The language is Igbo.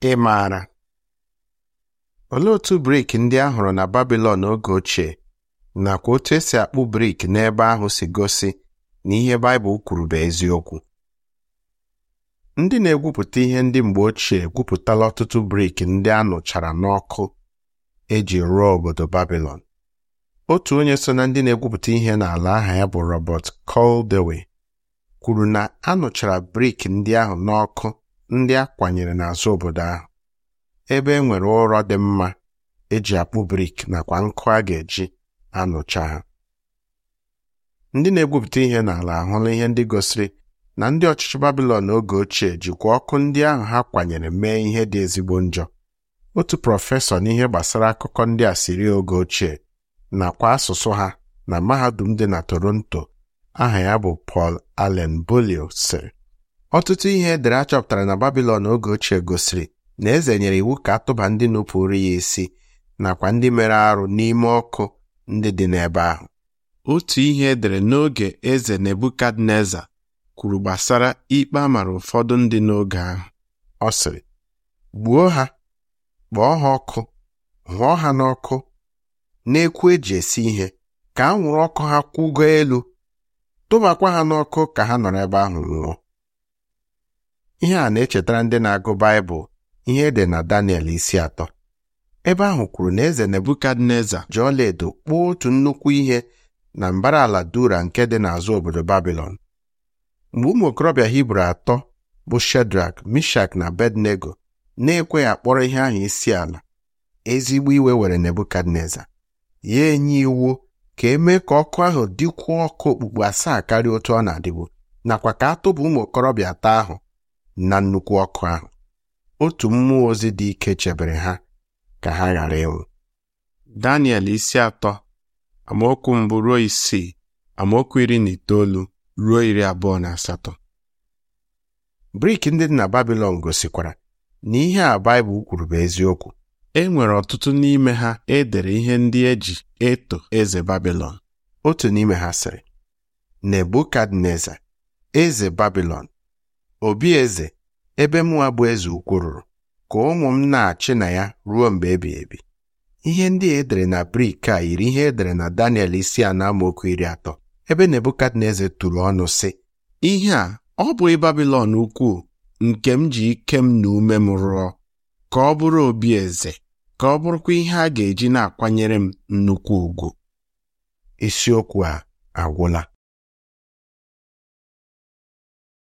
Ị maara olee otu brik ndị a hụrụ na Babilọn oge ochie nakwa otu esi akpụ brik n'ebe ahụ si gosi na ihe Baịbụl kwuru bụ eziokwu ndị na-egwupụta ihe ndị mgbe ochie gwupụtala ọtụtụ brik ndị a nụchara n'ọkụ eji rụọ obodo Babilọn otu onye so na ndị na-egwupụta ihe n'ala aha ya bụ Robert Caldewey kwuru na a nụchara brik ndị ahụ n'ọkụ ndị a kwanyere n'azụ obodo ahụ ebe e nwere ụrọ dị mma eji akpụ brik nakwa nkụ a ga-eji anụcha ha ndị na-egwupụta ihe n'ala ahụla ihe ndị gosiri na ndị ọchịchị Babilọn oge ochie jikwa ọkụ ndị ahụ ha kwanyere mee ihe dị ezigbo njọ otu prọfesọ n'ihe gbasara akụkọ ndị asịrị oge ochie nakwa asụsụ ha na mahadum dị na Toronto aha ya bụ Paul Allen Bolio sịrị ọtụtụ ihe edere a chọpụtara na Babilọn oge ochie gosiri na eze nyere iwu ka atụba ndị nupụrụ ya isi nakwa ndị mere arụ n'ime ọkụ ndị dị n'ebe ahụ otu ihe edere n'oge eze Nebukadneza kwuru gbasara ikpe amara ụfọdụ ndị n'oge ahụ ọ sịrị gbuo ha kpọọ ha ọkụ hụọ ha n'ọkụ ekwu eji esi ihe ka anwụrụ ọkụ ha kwụgo elu tụbakwa ha n'ọkụ ka ha nọrọ ebe ahụ nwụọ ihe a na-echetara ndị na-agụ Baịbụl ihe dị na Daniel isi atọ ebe ahụ kwuru na eze Nebukadneza ji ọlaedo kpụọ otu nnukwu ihe na mbara ala Dura nke dị n'azụ obodo Babilọn mgbe ụmụ okorobịa Hibru atọ bụ Shedrak, Mishak na bednego na-ekweghị akpọrọ ihe ahụ isi ala ezigbo iwe were Nebukadneza ya enye iwu ka emee ka ọkụ ahụ dịkwuo ọkụ okpukpu asaa karịa otu ọ na-adịbu nakwa ka a tụbụ ụmụ okorobịa atọ ahụ na nnukwu ọkụ ahụ otu mmụọ ozi dị ike chebere ha ka ha ghara ịnwụ Daniel isi atọ amaokwu mbụ ruo isii amaokwu iri na itoolu ruo iri abụọ na asatọ brik ndị dị na Babilọn gosikwara na ihe a Baịbụl kwuru bụ eziokwu e nwere ọtụtụ n'ime ha edere ihe ndị eji eto eze Babilọn otu n'ime ha sịrị Nebukadneza eze Babilọn obi eze ebe mụnwa bụ eze ukwu ka ụmụ m na-achị na ya ruo mgbe ebi ebi ihe ndị edere na brik a yiri ihe edere na Daniel isi a na amaokwu iri atọ ebe Nebukadneza tụrụ ọnụ sị ihe a ọ bụghị Babilọn ukwuu nke m ji ike m na ume m rụọ ka ọ bụrụ obi eze ka ọ bụrụkwa ihe a ga-eji na-akwanyere m nnukwu ugwu isiokwu a agwụla